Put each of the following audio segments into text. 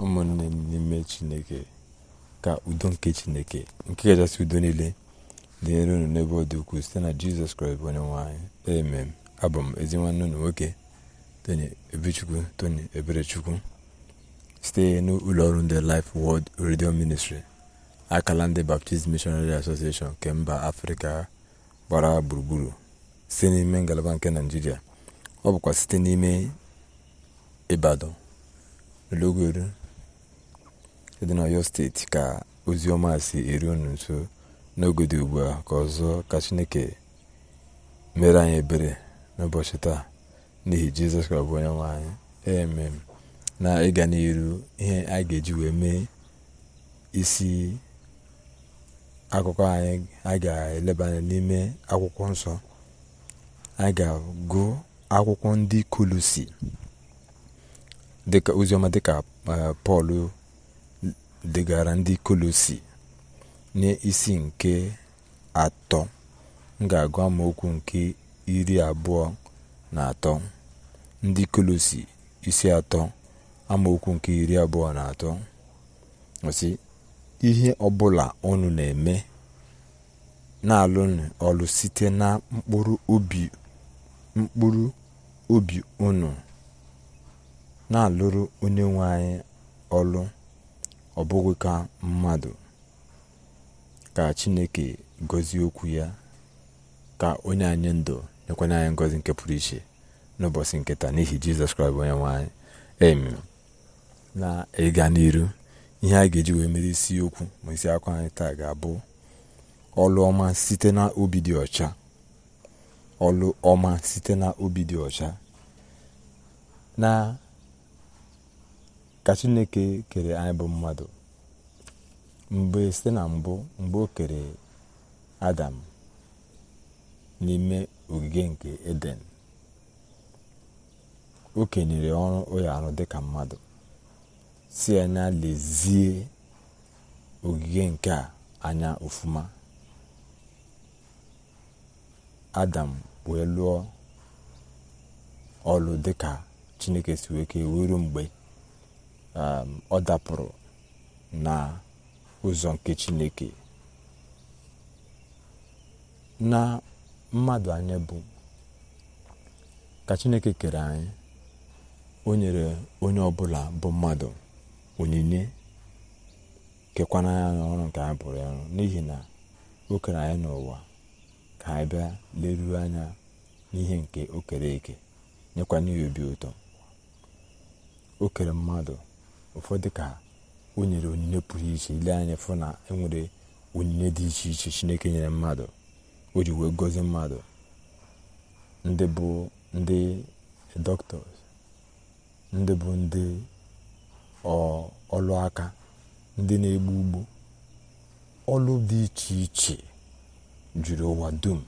ụmụnne m n'ime chineke ka udo nke chineke nke kachasị udo niile dịnyere unu n'ebe ọ dị ukwuu site na jizọs kraịst bụ onye nwanyị emem abụ m ezi nwanne unu nwoke tony ebechukwu tony eberechukwu site n'ụlọ ọrụ ndị life world radio ministry akala ndị baptist missionary association nke mba afrịka gbara gburugburu site n'ime ngalaba nke naijiria ọ bụkwa site n'ime ịbadan logoru dị na ọyọ steeti ka ozi ọma si eru unu nso n'oge ugbu a ka ọzọ ka chineke mere anyị ebere n'ụbọchị taa n'ihi jizọs ka ọbụ onye nwe anyị na ịga n'iru ihe a ga-eji wee mee isi akụkọ anyị a ga-eleba anya n'ime akwụkwọ nsọ a ga-agụ akwụkwọ ndị kolosi dịka oziọma dịka eh, pọl degara ndị kolosi n'isi nke atọ m ga-agụ amaokwu nke iri abụọ na atọ ndị kolosi isi atọ amaokwu nke iri abụọ na atọ osi ihe ọbụla unu na-eme na-alụnụ ọlụ site na mkpụrụ obi mkpụrụ unu na-alụrụ onye nwe anyị ọlụ ọ bụghị ka mmadụ ka chineke gozie okwu ya ka onye anyị ndụ nyekwanye anyị ngozi nke pụrụ iche n'ụbọchị nketa n'ihi jizọs kraịst onye nwe anyị emi na ịga n'iru ihe a ga-eji wee mere isi okwu ma isi akwa anyị taa ga-abụ ọlụ ọma site na obi dị ọcha ọlụ ọma site na obi dị ọcha na ka chineke kere anyị bụ mmadụ mgbe site na mbụ mgbe o kere adam n'ime ogige nke eden o kenyere ọrụ ụlọ arụ dịka mmadụ si na lezie ogige nke a anya ofuma adam wee lụọ ọlụ dịka chineke si wee kee mgbe Um, ọ dapụrụ na ụzọ nke chineke na mmadụ anya bụ ka chineke kere anyị o nyere onye ọbụla bụ mmadụ onyinye kekwana ya n'ọrụ nke anyị bụrụ ya n'ihi na o kere anyị n'ụwa ka anyị bịa leruo anya n'ihe nke o kere eke nyekwana ya obi ụtọ o mmadụ ụfọdụ ka o nyere onyinye pụrụ iche ile anya fụ na enwere onyinye dị iche iche chineke nyere mmadụ o ji wee gọzie mmadụ ndị bụ ndị ọlụaka ndị bụ ndị ọlụ ndị na-egbu ugbo ọlụ dị iche iche jụrụ ụwa dum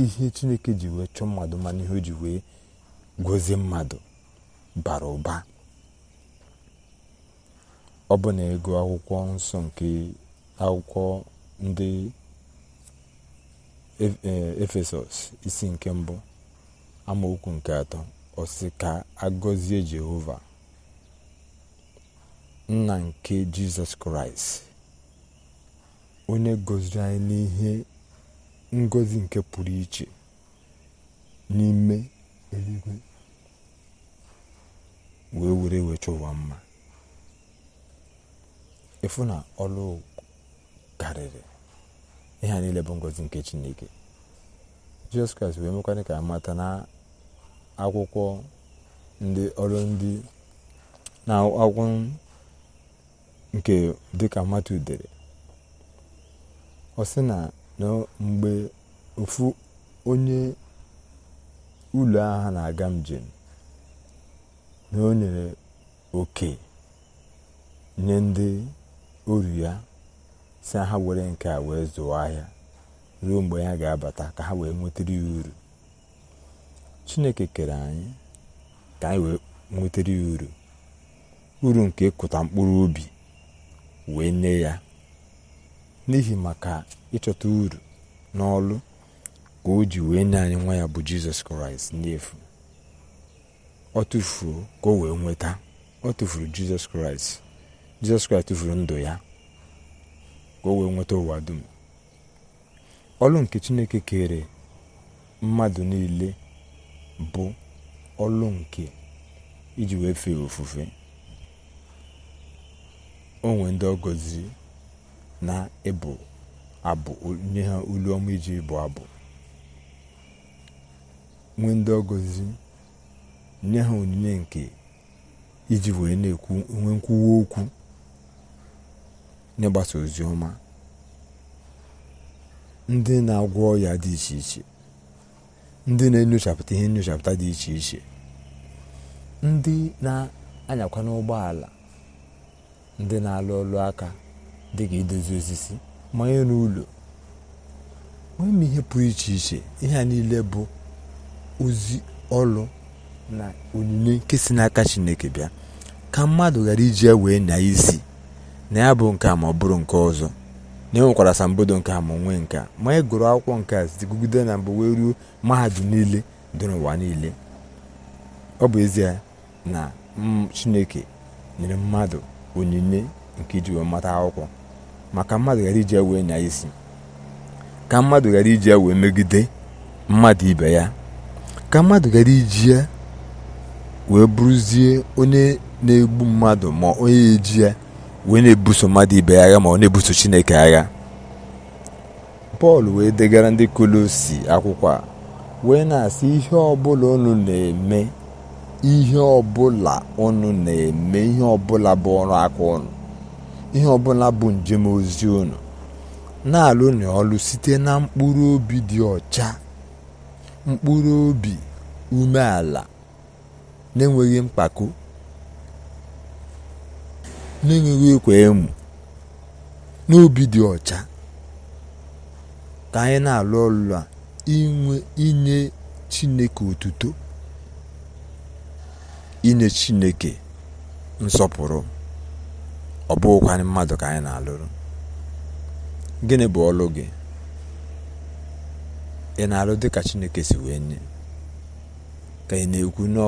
ihe chineke ji wee chọọ mmadụ mana ihe o ji wee gozie mmadụ bara ụba ọ bụ na ego akwụkwọ nsọ nke akwụkwọ ndị e, efesọs isi nke mbụ amaokwu nke atọ ọsị ka agọzie jehova nna nke jizọs kraịst onye gọziri anyị n'ihe ngọzi nke pụrụ iche n'ime eluigwe wee were wee chọọ ụwa mma ịfụ na ọlụ karịrị ihe niile bụ ngozi nke chineke jizọs kraịst wee mekwanye ka amata na akwụkwọ ndị ọrụ ndị na akwụkwọ nke dịka mmadụ dere ọ sị na mgbe ofu onye ụlọ agha na-aga njem na o nyere oke nye ndị oru ya si ha were nke a wee zụọ ahịa ruo mgbe ha ga-abata ka ha wee nwetara ya uru chineke kere anyị ka anyị wee nwetara ya uru uru nke ịkụta mkpụrụ obi wee nye ya n'ihi maka ịchọta uru n'ọlụ ka o ji wee nye anyị nwa ya bụ jizọs kraịst n'efu ọ tụfuo ka o wee nweta ọ tụfuru jizọs kraịst jizọs kraịst tụfuru ndụ ya ka o wee nweta ụwa dum ọlụ nke chineke kere mmadụ niile bụ ọlụ nke iji wee fee ofufe onwe ndị ọgọzi na ịbụ abụ nye ha olu ọma iji ịbụ abụ nwee ndị ọgọzi nye ha onyinye nke iji wee na-ekwu nwe nkwuwa okwu n'ịgbasa ozi ọma ndị na-agwọ ọya dị iche iche ndị na-enyochapụta ihe nyochapụta dị iche iche ndị na-anyakwa n'ụgbọ ala ndị na-alụ ọlụ aka dị ka idozi osisi manye n'ụlọ nwee m ihe pụrụ iche iche ihe a niile bụ ozi ọlụ na onyinye nke si n'aka chineke bịa ka mmadụ ghara iji ya wee nya isi na ya bụ nke ma ọ bụrụ nke ọzọ na enwekwara asambodo nke ama ma nwee nke a ma anyị e gụrụ akwụkwọ nke a na mbụ wee ruo mahadum niile dị n'ụwa niile ọ bụ ezie na mm, chineke nyere mmadụ onyinye nke iji wee mata akwụkwọ maka mmadụ ghara iji ya wee nya isi ka mmadụ ghara iji ya wee megide mmadụ ibe ya ka mmadụ ghara iji ya wee bụrụzie onye na-egbu mmadụ ma onye eji ya wee na-ebuso mmadụ ibe agha ma ọ na-ebuso chineke agha pọl wee degara ndị kolosi akwụkwọ a wee na-asị ihe ọbụla unu na-eme ihe ọbụla unu na-eme ihe ọbụla bụ ọrụ aka ọnụ ihe ọbụla bụ njem ozi unu na-alụ na ọlụ site na mkpụrụ obi dị ọcha mkpụrụ obi umeala n'enweghị mpako n'enweghị ekwe emu n'obi dị ọcha ka anyị na-alụ ọlụ a inye chineke otuto inye chineke nsọpụrụ ọ bụghịkwanị mmadụ ka anyị na-alụrụ gịnị bụ ọlụ gị ị na-alụ dị ka chineke si wee nye ka ị na-ekwu na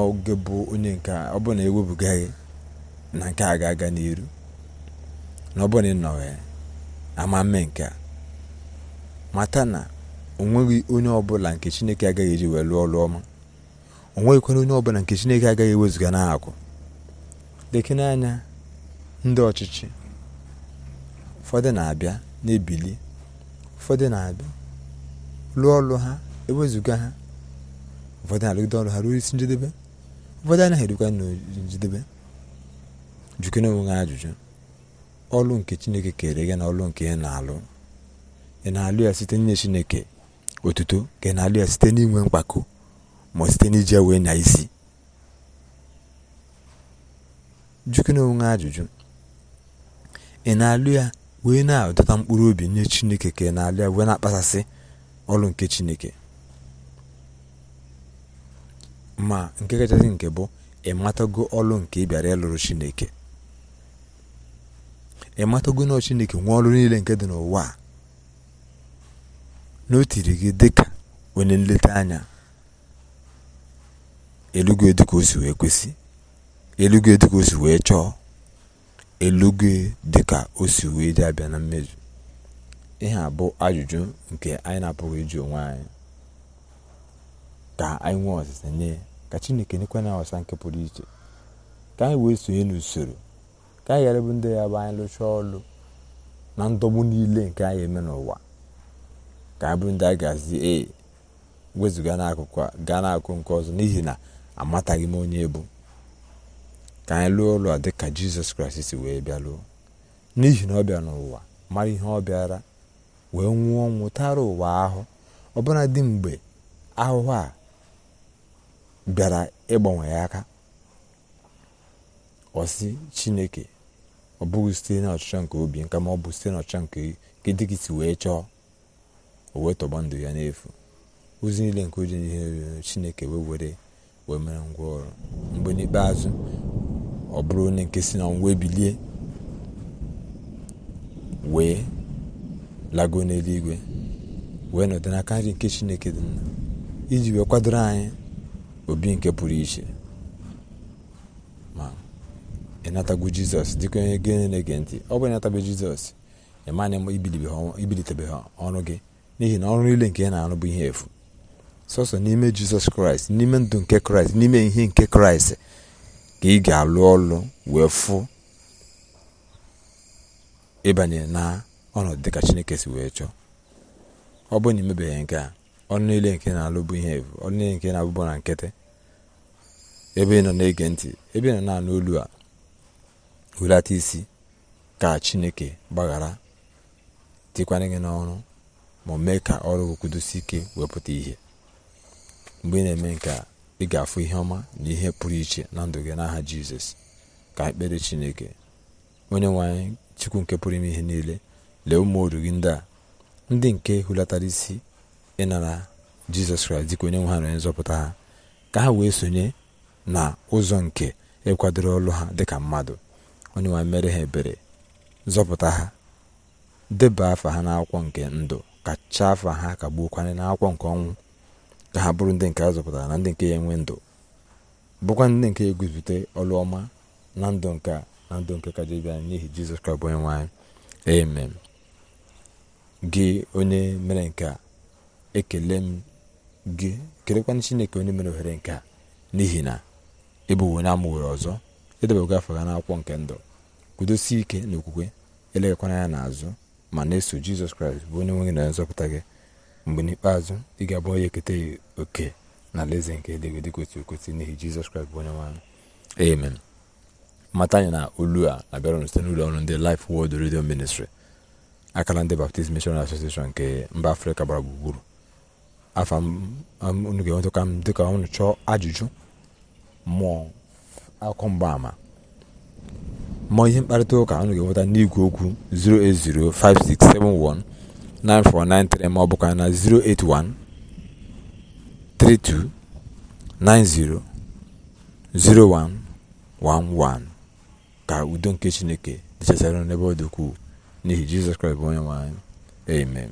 bụ onye nke ọ bụrụ na ewepụga gị na nke a ga-aga n'iru na ọ bụrụ na ị nọ ya ama mme nke a mata na o nweghị onye ọbụla nke chineke agaghị eji wee lụọ ọrụ ọma o nweghịkwana onye ọbụla nke chineke agaghị ewezụga n'akụ lekene anya ndị ọchịchị ụfọdụ na-abịa na-ebili ụfọdụ na-abịa lụọ ọlụ ha ewezuga ha ụfọdụ na-arụgide ọrụ ha ruo isi njedebe ụfọdụ anaghị erukwa njedebe jukene onwe ha ajụjụ ọlụ nke chineke kere gị na ọlụ nke ị na-alụ ị na-alụ ya site n'inye chineke otuto ka ị na-alụ ya site n'inwe mkpako ma site n'iji wee na isi jukene onwe ajụjụ ị na-alụ ya wee na-adọta mkpụrụ obi nye chineke ka ị na-alụ ya wee na-akpasasị ọlụ nke chineke ma nke kachasị nke bụ ị matago ọlụ nke ịbịara ịlụrụ chineke ịmatago matago na chineke nwee ọlụ niile nke dị n'ụwa a na o tiri gị dị ka onye nleta anya elugo dịka ka wee kwesị elugo dịka osi wee chọọ elugo dịka osi wee dị abịa na mmezu ihe a bụ ajụjụ nke anyị na-apụghị ịjụ onwe anyị ka anyị nwee ọzịza nye ka chineke nyekwa na ọsa nke pụrụ iche ka anyị wee sonye n'usoro ka anyị ghara ndị ya bụ anyị lụchaa ọlụ na ndọgbu niile nke anyị eme n'ụwa ka anyị bụrụ ndị a ga-azi ee wezụga n'akụkụ a gaa n'akụkụ nke ọzọ n'ihi na amataghị m onye bụ ka anyị lụọ ụlọ dị ka jizọs kraịst si wee bịa lụọ n'ihi na ọ bịa n'ụwa mara ihe ọ bịara wee nwụọ nwụtara ụwa ahụ ọbụna dị mgbe ahụhụ a bịara ịgbanwe ya aka ọsị chineke ọ bụghị site na ọchịchọ nke obi nka ma ọ bụ site na ọchịchọ nke nke dị gị si wee chọọ o wee tọgba ndụ ya n'efu ozi niile nke oji n'ihe chineke wee were wee mere ngwa ọrụ mgbe n'ikpeazụ ọ bụrụ onye nke si na ngwa ebilie wee lago n'eluigwe wee nọdụ n'aka nri nke chineke dị mma iji wee kwadoro anyị obi nke pụrụ iche ma ịnatago jizọs dịka onye gị na-ege ntị ọ bụ ịnatabe jizọs ibilitebe ibilitebeghị ọrụ gị n'ihi na ọrụ niile nke ị na-arụ bụ ihe efu sọsọ n'ime jizọs kraịst n'ime ndụ nke kraịst n'ime ihe nke kraịst ka ị ga-alụ ọlụ wee fụ ịbanye na ọnọdụ dịka chineke si wee chọọ ọ bụrụ na imebeghị nke a ọrụ niile nke na-alụ bụ ihe efu ọrụ niile nke na abụbụ na nkịtị ebe ị nọ na-ege ntị ebe ị nọ na-anụ olu a hulata isi ka chineke gbaghara tikwanye gị n'ọrụ ma mee ka ọrụ kwudosi ike wepụta ihe mgbe ị na-eme nke a ị ga-afụ ihe ọma na ihe pụrụ iche na ndụ gị n'aha jizọs ka ekpere chineke onye nwe chukwu nke pụrụ ime ihe niile lee ụmụ oru gị ndị a ndị nke hulatara isi ịnara jizọs kraịst dịka onye nwe ha na onye nzọpụta ha ka ha wee sonye na ụzọ nke ịkwadoro ọlụ ha dịka mmadụ onye nwe mere ha ebere zọpụta ha deba afa ha n'akwụkwọ nke ndụ kacha afa ha ka gbuokwana n'akwụkwọ nke ọnwụ ka ha bụrụ ndị nke a zọpụtara na ndị nke ya enwe ndụ bụkwa ndị nke eguzite ọlụ ọma na ndụ nke a na ndụ nke kaja ibe n'ihi jizọs kraịst bụ onye nwe anyị amen gị onye mere nke a ekele m gị kelekwana chineke onye mere ohere nke a n'ihi na ịbụwo onye amụwere ọzọ edebego afọ na n'akwụkwọ nke ndụ kwudosie ike na okwukwe eleghakwana ya n'azụ ma na-eso jizọs kraịst bụ onye nwe gị na nzọpụta gị mgbe n'ikpeazụ ị ga-abụ onye eketa oke na alaeze nke eluigwe dị kwesịrị n'ihi jizọs kraịst bụ onye nwaanyị amen mata anyị na olu a abịara site n'ụlọ ọrụ ndị Life wod redio Ministry akara ndị Baptist Mission Association nke mba afrịka gbara gburugburu afa unu ga-enweta ka m dịka ọnụ chọọ ajụjụ mụọ akụkọ mgbaama mụọ ihe mkparịta ụka unu ga-enweta n'igwe okwu 08056719493 ma ọ bụkwa na 0111 ka udo nke chineke dịchasara n'ebe ọ dị ukwuu n'ihi jizọs kraịst bụ onye nwe amen